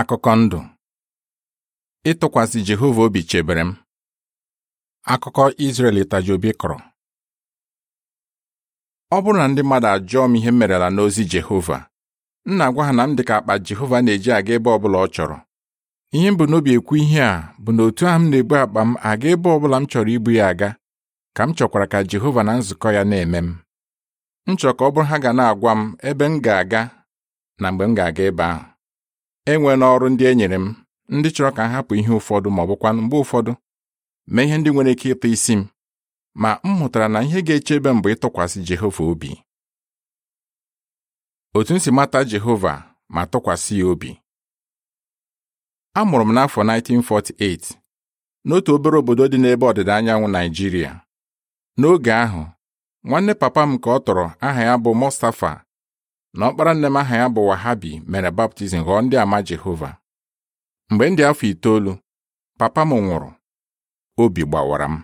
Akụkọ ndụ ịtụkwasị Jehova obi chebere m akụkọ Izrel itaji obi kọrọ ọ bụrụ na ndị mmadụ ajụọ m ihe m merela n'ozi Jehova m na-agwa ha na m ka akpa Jehova na-eji aga ebe ọbụla ọ chọrọ ihe m bụ n'obi ekwu ihe a bụ na otu ahụ m na-ebu akpa m aga ebe ọbụla m chọrọ ibu ya aga ka m chọkwara ka Jehova na nzukọ ya na-eme m m chọrọ ka ọ bụrụ ha ga na-agwa m ebe m ga-aga na mgbe m ga-aga ebe ahụ enwe n'ọrụ ndị e nyere m ndị chọrọ ka m hapụ ihe ụfọdụ ma ọ bụkwanụ mgbe ụfọdụ mee ihe ndị nwere ike ịtụ isi m ma m hụtara na ihe ga-echebe m bụ ịtụkwasị Jehova obi otu m si mata Jehova ma tụkwasị ya obi amụrụ m n'afọ 1948 n'otu obere obodo dị n'ebe ọdịda anyanwụ Naijiria n'oge ahụ nwanne papa m ka ọ tọrọ aha ya bụ Mustafa na ọkpara nne m aha ya bụ Wahabi mere baptizim ghọọ ndị ama Jehova mgbe ndị afọ itoolu papa m nwụrụ obi gbawara m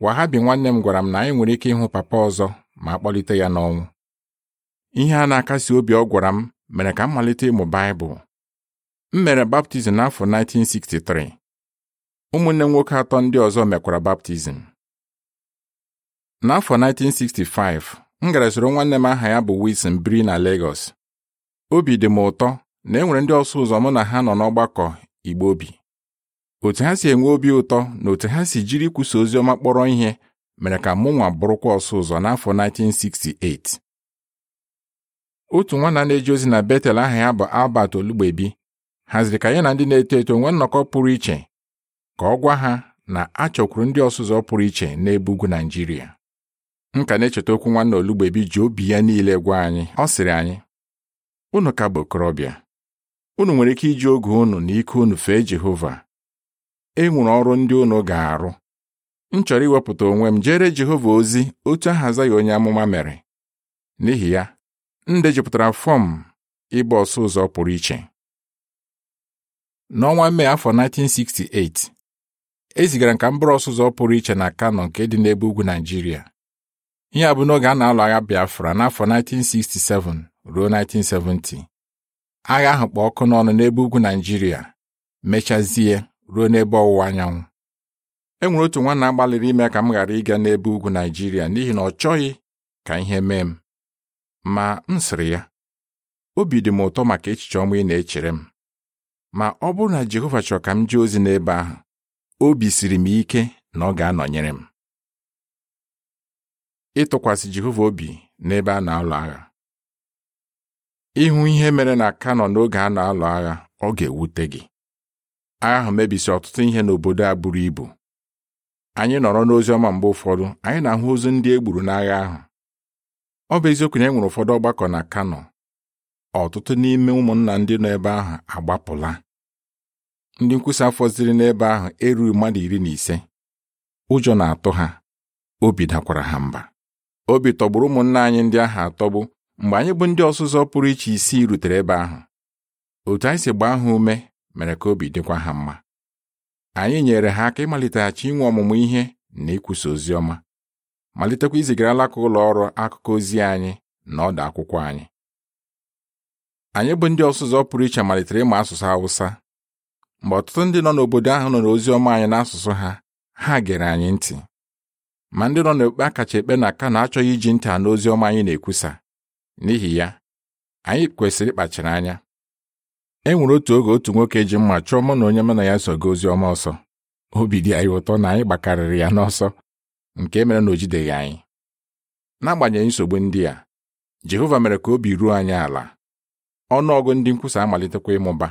Wahabi nwanne m gwara m na anyị nwere ike ịhụ papa ọzọ ma a kpọlite ya n'ọnwụ ihe a na-akasi obi ọ gwara m mere ka m malite ịmụ Baịbụl m mere baptizim n'afọ 1963 ụmụnne m nwoke atọ ndị ọzọ mekwara baptizim n'afọ 1965 m gara soro nwanne m aha ya bụ Wilson biri na Lagos obi dị m ụtọ na enwere ndị ọsụ ụzọ mụ na ha nọ n'ọgbakọ Igbo obi otu ha si enwe obi ụtọ na otu ha si jiri ikwusa ozi ọma kpọrọ ihe mere ka mụ nwa bụrụkwa ọsụ ụzọ n'afọ 1968 otu nwanna na-eji ozi na Betel aha ya bụ Albert Olugbebi haziri ka ya na ndị na-eto eto nwee nnọkọ pụrụ iche ka ọ gwa ha na a chọkwuru ndị ọsụ pụrụ iche n'ebe ugwu naijiria m ka na-echeta okwu nwanne olugbebi ji obi ya niile gwa anyị ọ sịrị anyị unu ka bụ okorobịa unu nwere ike iji oge unu na ike unu fee Jehova e ọrụ ndị unu ga-arụ m chọrọ iwepụta onwe m jere Jehova ozi otu ahaza ya onye amụma mere n'ihi ya m dejupụtara fọm ịgba ọsọ ụzọ pụrụ iche n'ọnwa Mee afọ 1968 e zigara m ka m bụrụ ọsụ ụzọ pụrụ iche na Kano nke dị n'ebe ugwu Naịjirịa ihe a bụ n'oge a na-alụ agha Biafra n'afọ 1967 ruo 1970 agha ahụ kpọ ọkụ n'ọnụ n'ebe ugwu Naịjirịa mechazie ruo n'ebe ọwụwa anyanwụ e nwere otu nwa na-agbalịrị ime ka m ghara ịga n'ebe ugwu Naịjirịa n'ihi na ọ chọghị ka ihe mee m ma m sịrị ya obi dị m ụtọ maka echiche ọma ị na-echere m ma ọ bụrụ na Jehova chọrọ ka m jee ozi n'ebe ahụ obi siri m ike na ọ ga-anọnyere m ịtụkwasị Jehova obi n'ebe a na-alụ agha ịhụ ihe mere na Kano n'oge a na-alụ agha ọ ga-ewute gị agha ahụ mebisi ọtụtụ ihe n'obodo a buru ibu anyị nọrọ n'ozi ọma mgbe ụfọdụ anyị na-ahụ ozu ndị e gburu n'agha ahụ ọ bụ eziokwu na e nwere ụfọdụ ọgbakọ na Kano ọtụtụ n'ime ụmụnna ndị nọ ebe ahụ agbapụla ndị nkwusa fọziri n'ebe ahụ erughị mmadụ iri na ise ụjọ na-atụ ha obi dakwara ha mba obi tọgburu ụmụnna anyị ndị ahụ atọgbu mgbe anyị bụ ndị ọzụzọ pụrụ iche isii rutere ebe ahụ otu anyị si gbaa ha ume mere ka obi dịkwa ha mma anyị nyere ha aka ịmaliteghachi inwe ọmụmụ ihe na ikwusa ozi ọma malitekwa izigara alaka ụlọ ọrụ akụkọ ozi anyị na ọdụ akwụkwọ anyị anyị bụ ndị ọsụzọ pụrụ iche malitere ịma asụsụ Hausa mgbe ọtụtụ ndị nọ n'obodo ahụ nọ n'oziọma ọma anyị n'asụsụ ha ha gere anyị ntị ma ndị nọ n'okpe akacha kacha ekpe na aka na-achọghị iji ntị anụ ozi ọma anyị na-ekwusa n'ihi ya anyị kwesịrị ịkpachara anya e nwere otu oge otu nwoke ji mma chụọ mụ na onye mụ na ya sogo ozi ọma ọsọ obi dị anyị ụtọ na anyị gbakarịrị ya n'ọsọ nke mere na o jideghị anyị n'agbanyeghị nsogbu ndị a Jehova mere ka obi ruo anyị ala ọnụọgụ ndị nkwusa amalitekwa ịmụba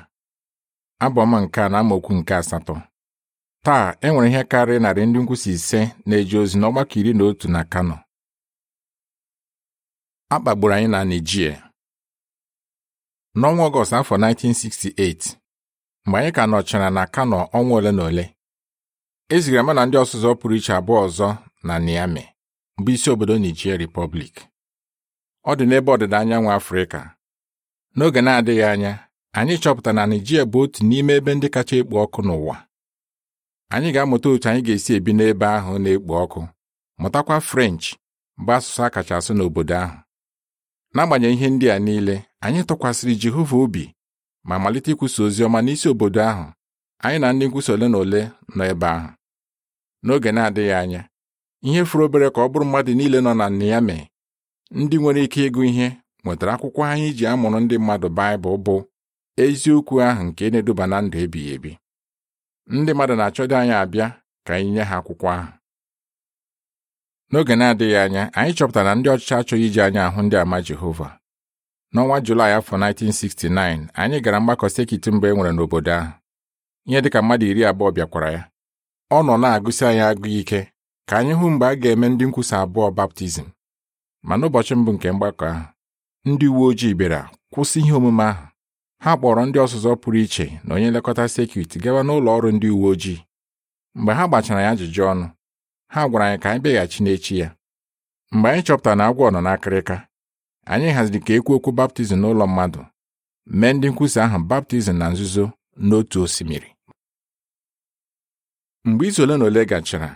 abọma nke a na amaokwu nke asatọ taa e nwere ihe karịrị narị ndị nkwụsị ise na-eje ozi n'ọgbakọ iri na otu na Kano a kpagburu anyị na Naijiria. n'ọnwa Ọgọst afọ 1968 mgbe anyị ka nọchara na Kano ọnwa ole na ole e zigara ndị ọzụzụ pụrụ iche abụọ ọzọ na Niamey bụ isi obodo Naijiria Repọblik. ọ dị n'ebe ọdịda anyanwụ Afrịka n'oge na-adịghị anya anyị chọpụtara na Naijiria bụ otu n'ime ebe ndị kacha ekpo ọkụ n'ụwa anyị ga-amụta otu anyị ga-esi ebi n'ebe ahụ na-ekpo ọkụ mụtakwa French bụ asụsụ a kacha asụ n'obodo ahụ n'agbanyeghị ihe ndị a niile anyị tụkwasịrị Jehova obi ma malite ikwusa ozi ọma n'isi obodo ahụ anyị na ndị nkwusa ole na ole nọ ebe ahụ n'oge na-adịghị anya ihe furu obere ka ọ bụrụ mmadụ niile nọ na Niamey ndị nwere ike ịgụ ihe nwetara akwụkwọ anyị ji amụrụ ndị mmadụ Baịbụl bụ eziokwu ahụ nke na-eduba na ndụ ebighị ebi ndị mmadụ na-achọdo anyị abịa ka anyị nye ha akwụkwọ ahụ n'oge na-adịghị anya anyị chọpụtara na ndị ọchịchị achọghị iji anya ahụ ndị ama Jehova n'ọnwa Julaị afọ 1969 anyị gara mgbakọ sekit mgbe e nwere n'obodo ahụ ihe dịka mmadụ iri abụọ bịakwara ya ọ nọ na-agụsi anyị agụ ike ka anyị hụ mgbe a ga-eme ndị nkwusa abụọ baptizim ma n'ụbọchị mbụ nke mgbakọ ahụ ndị uwe ojii bịara kwụsị ihe omume ahụ ha kpọrọ ndị ọzụzọ pụrụ iche na onye nlekọta sekit gawa n'ụlọ ọrụ ndị uwe ojii mgbe ha gbachara ya ajụjụ ọnụ ha gwara anyị ka anyị bịaghachi n'echi ya mgbe anyị chọpụtara na agwọ nọ n'akịrịka anyị haziri ka ekwu okwu baptizim n'ụlọ mmadụ mee ndị nkwusa ahụ baptizim na nzuzo n'otu osimiri mgbe izu ole na ole gachara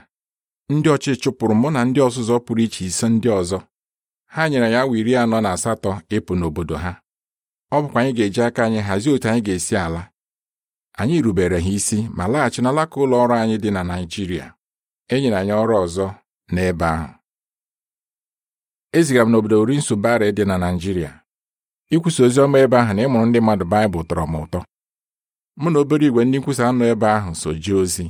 ndị ọchị chụpụrụ mụ na ndị ọzụzọ pụrụ iche ise ndị ọzọ ha nyere ya awa iri anọ na asatọ ịpụ n'obodo ha ọ bụkwa anyị ga-eji aka anyị hazie otu anyị ga-esi ala anyị rubere ha isi ma laghachi n'alaka ụlọ ọrụ anyị dị na Naijiria e nyere anyị ọrụ ọzọ n'ebe ahụ ezigara m n'obodo Urinsubara dị na Naijiria. ikwusa ozi ọma ebe ahụ na ịmụrụ ndị mmadụ Baịbụl tọrọ m ụtọ mụ na obere igwe ndị nkwusa anọ ebe ahụ so jee ozi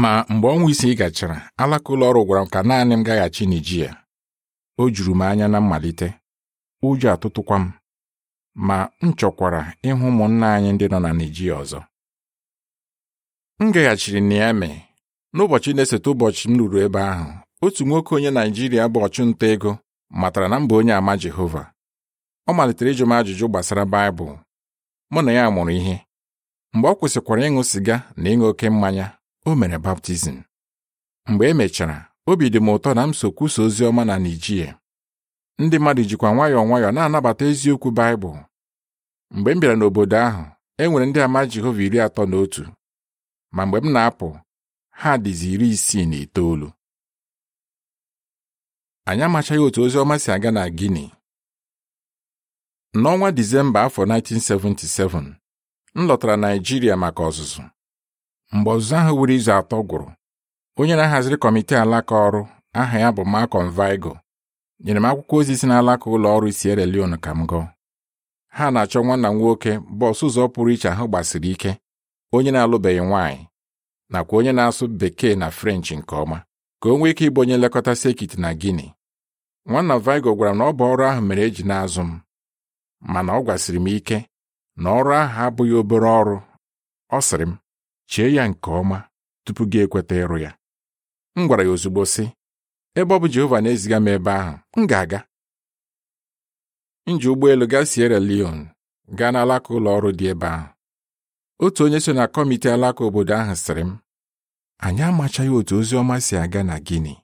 ma mgbe ọnwa isii gachara alaka ụlọ ọrụ gwara m ka naanị m gaghachi ya. o juru m anya na mmalite ụjọ atụtụkwa m ma m chọkwara ịhụ ụmụnna anyị ndị nọ na Naijiria ọzọ m gaghachiri Niamey n'ụbọchị na-esote ụbọchị m ruru ebe ahụ otu nwoke onye Naijiria bụ ọchụnta ego matara na mba onye ama Jehova ọ malitere ịjụ m ajụjụ gbasara Baịbụl mụ na ya mụrụ ihe mgbe ọ kwụsịkwara ịṅụ sịga na ịṅụ oke mmanya o mere baptizim mgbe e mechara obi dị m ụtọ na m so kwusa ozi ọma na Naijiria ndị mmadụ jikwa nwayọọ nwayọọ na-anabata eziokwu Baịbụl mgbe m bịara n'obodo ahụ e nwere ndị ama Jehova iri atọ na otu ma mgbe m na-apụ ha dịzi iri isii na itoolu anyị amachaghị otu ozi ọma si aga na gini. n'ọnwa Disemba afọ 1977 m lọtara naijiria maka ọzụzụ mgbe ọzụzụ ahụ wuru izu atọ gwụrụ onye na-ahaziri kọmitii alaka ọrụ aha ya bụ Malcolm Vigo nyere m akwụkwọ ozi si n'alaka ụlọ ọrụ Sierra Leone ka m gụọ ha na-achọ nwanna nwoke bọs ụzọ pụrụ iche ahụ gbasiri ike onye na-alụbeghị nwaanyị nakwa onye na-asụ bekee na french nke ọma ka o nwee ike ịbụ onye nlekọta sekit na guinea nwanna vigo gwara m na ọ bụ ọrụ ahụ mere eji na-azụ m mana ọ gwasịrị m ike na ọrụ ahụ abụghị obere ọrụ ọ sịrị m chee ya nke ọma tupu gị ekweta ịrụ ya m gwara ya ozugbo sị ebe ọ bụ Jehova na-eziga m ebe ahụ m ga-aga m ji ụgbọelu gaa Sierra Leone gaa n'alaka ụlọ ọrụ dị ebe ahụ otu onye so na kọmiti alaka obodo ahụ sịrị m anyị amachaghị otu ozi ọma si aga na Guinea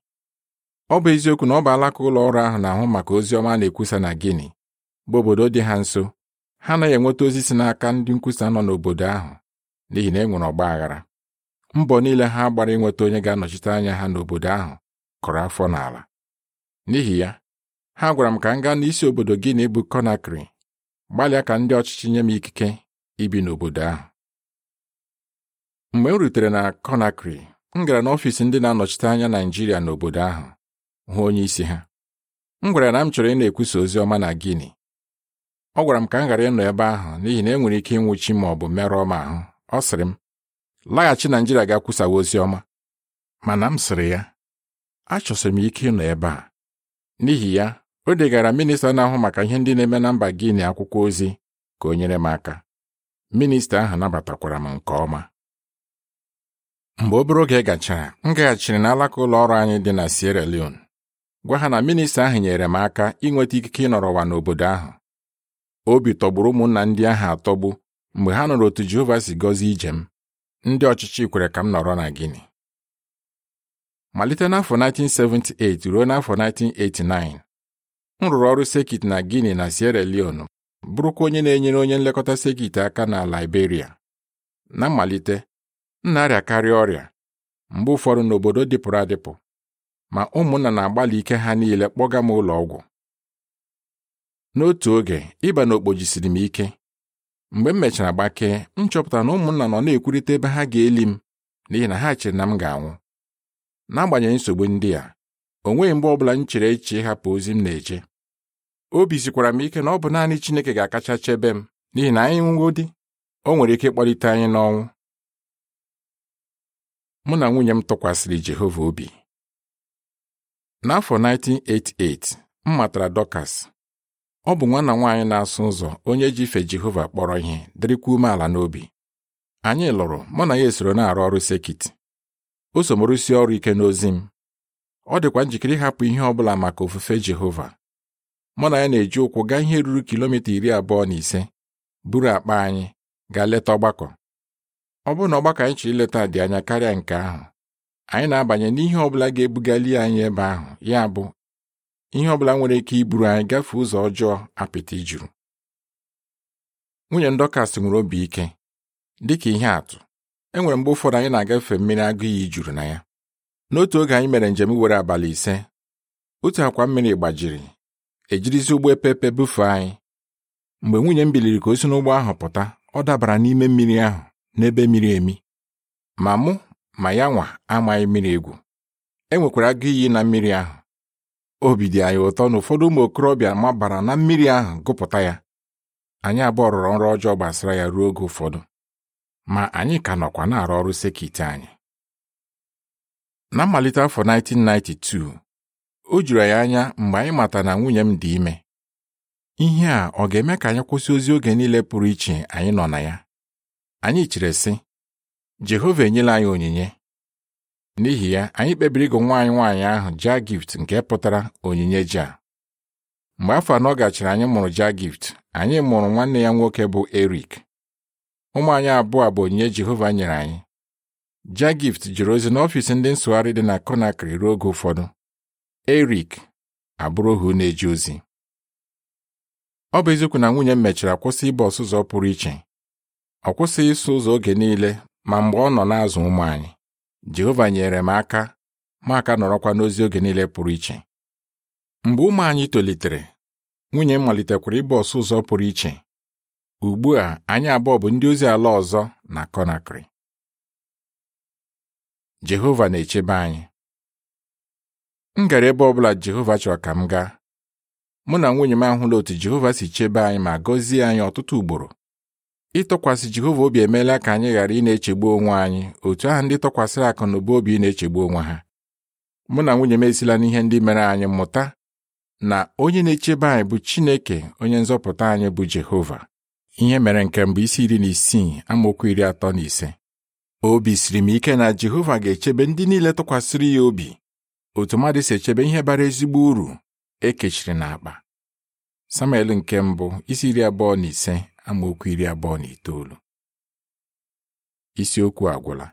ọ bụ eziokwu na ọ bụ alaka ụlọ ọrụ ahụ na-ahụ maka ozi ọma na-ekwusa na Guinea bụ obodo dị ha nso ha anaghị enweta ozi si n'aka ndị nkwusa nọ n'obodo ahụ n'ihi na e nwere ọgba aghara mbọ niile ha gbara inweta onye ga-anọchite anya ha n'obodo ahụ kụrụ afọ n'ala n'ihi ya ha gwara m ka m gaa n'isi obodo Gini bụ konakri Conakry gbalịa ka ndị ọchịchị nye m ikike ibi n'obodo ahụ mgbe m rutere na Conakry m gara n'ọfịs ndị na-anọchite anya Naịjirịa n'obodo ahụ hụ onye isi ha m gwara na m chọrọ ị na-ekwusa ozi ọma na Guinea ọ gwara m ka m ghara ịnọ ebe ahụ n'ihi na e nwere ike ịnwụchi ma ọ bụ merụọ m ahụ ọ sịrị m laghachi Naịjirịa ga-akwụsawa ozi ọma mana m sịrị ya achọsiri m ike ịnọ ebe a n'ihi ya o degara minista na-ahụ maka ihe ndị na-eme na mba Gini akwụkwọ ozi ka o nyere m aka minista ahụ nabatakwara m nke ọma mgbe obere oge gachara m gaghachiri n'alaka ụlọ ọrụ anyị dị na Sierra Leone gwa ha na minista ahụ nyere m aka inweta ikike ịnọrọ ụwa n'obodo ahụ obi tọgburu ụmụnna ndị ahụ atọgbu mgbe ha nụrụ otu Jehova si gọzie ije m ndị ọchịchị kwere ka m nọrọ na Gini. malite n'afọ 1978 ruo n'afọ 1989 m rụrụ ọrụ sekit na Guinea na Sierra Leone bụrụkwa onye na-enyere onye nlekọta sekit aka na Liberia na mmalite m na arịakarịa ọrịa mgbe ụfọdụ n'obodo dịpụrụ adịpụ ma ụmụnna na-agbalị ike ha niile kpọga m ụlọ ọgwụ n'otu oge ịba na okpojisiri m ike mgbe m mechara gbakee m chọpụtara na ụmụnna nọ na-ekwurịta ebe ha ga-eli m n'ihi na ha chere na m ga-anwụ n'agbanyeghị nsogbu ndị a o nweghị mgbe ọ bụla m chere eche ịhapụ ozi m na-eche obi zikwara m ike na ọ bụ naanị Chineke ga-akacha chebe m n'ihi na anyị nwụwo di o nwere ike ịkpọlite anyị n'ọnwụ mụ na nwunye m tụkwasịrị Jehova obi n'afọ 1988 m matara Dọkas ọ bụ nwana nwaanyị na-asụ ụzọ onye ji ife Jehova kpọrọ ihe dịrịkwa umeala n'obi anyị lụrụ mụ na ya esoro na-arụ ọrụ sekit o so m ọrụ ike n'ozi m ọ dịkwa njikere ịhapụ ihe ọ bụla maka ofufe Jehova mụ na ya na-eji ụkwụ gaa ihe ruru kilomita iri abụọ na ise buru akpa anyị gaa leta ọgbakọ ọ bụrụ na ọgbakọ anyị chọrọ ileta dị anya karịa nke ahụ anyị na-abanye n'ihe ọbụla ga-ebugali anyị ebe ahụ ya bụ ihe ọbụla nwere ike iburu anyị gafee ụzọ ọjọọ apịtị juru nwunye ndọkasị nwere obi ike dịka ihe atụ enwere mgbe ụfọdụ anyị na-agafe mmiri agụ iyi juru na ya n'otu oge anyị mere njem were abalị ise otu akwa mmiri gbajiri ejirizi ụgbọ epepe bufee anyị mgbe nwunye m biliri ka o si n'ụgbọ ahụ pụta ọ dabara n'ime mmiri ahụ n'ebe miri emi ma mụ ma ya nwa amaghị mmiri egwu e nwekwara agụ iyi na mmiri ahụ obi dị anyị ụtọ na ụfọdụ ụmụ okorobịa mabara na mmiri ahụ gụpụta ya anyị abụọ rụrụ nrọ ọjọọ gbasara ya ruo oge ụfọdụ ma anyị ka nọkwa na-arụ ọrụ sekit anyị na mmalite afọ 1992 o juru anyị anya mgbe anyị mata na nwunye m dị ime ihe a ọ ga-eme ka anyị kwụsị ozi oge niile pụrụ iche anyị nọ na ya anyị chere sị Jehova enyela anyị onyinye n'ihi ya anyị kpebiri ịgụ nwaanyị nwaanyị ahụ gift nke pụtara onyinye ja mgbe afọ anọ gachara anyị mụrụ gift, anyị mụrụ nwanne ya nwoke bụ Erik ụmụ anyị abụọ bụ onyinye Jehova nyere anyị Ja gift jụrụ ozi n'ọfịs ndị nsụgharị dị na Conakry ruo oge ụfọdụ Erik abụrụ ohu na-eje ozi ọ bụ eziokwu na nwunye m mechara kwụsị ịba ọsụ ụzọ pụrụ iche ọ kwụsịghị ịsụ ụzọ oge niile ma mgbe ọ nọ n'azụ ụmụ anyị Jehova nyere m aka ma aka nọrọkwa n'ozi oge niile pụrụ iche mgbe ụmụ anyị tolitere nwunye m malitekwara ịba ọsụ ụzọ pụrụ iche ugbu a anyị abụọ bụ ndị ozi ala ọzọ na konakri Jehova na-echebe anyị m gara ebe ọbụla Jehova chọrọ ka m gaa mụ na nwunye m ahụla otu Jehova si chebe anyị ma gọzie anyị ọtụtụ ugboro ịtọkwasị Jehova obi emeela ka anyị ghara ị na-echegbu onwe anyị otu ahụ ndị tọkwasịrị akụ na ụba obi na-echegbu onwe ha mụ na nwunye m esila n'ihe ndị mere anyị mụta na onye na-echebe anyị bụ Chineke onye nzọpụta anyị bụ Jehova ihe mere nke mbụ isi iri na isii amaokwu iri atọ na ise obi siri m ike na Jehova ga-echebe ndị niile tụkwasịrị ya obi otu mmadụ si echebe ihe bara ezigbo uru ekechiri n'akpa Samuel nke mbụ isi iri abụọ na ise amaokwu iri abụọ na itoolu isiokwu agwụla